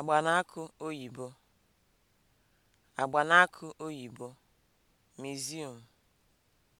agbanaka oyibo, agbanaka oyibo, museum